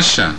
ashà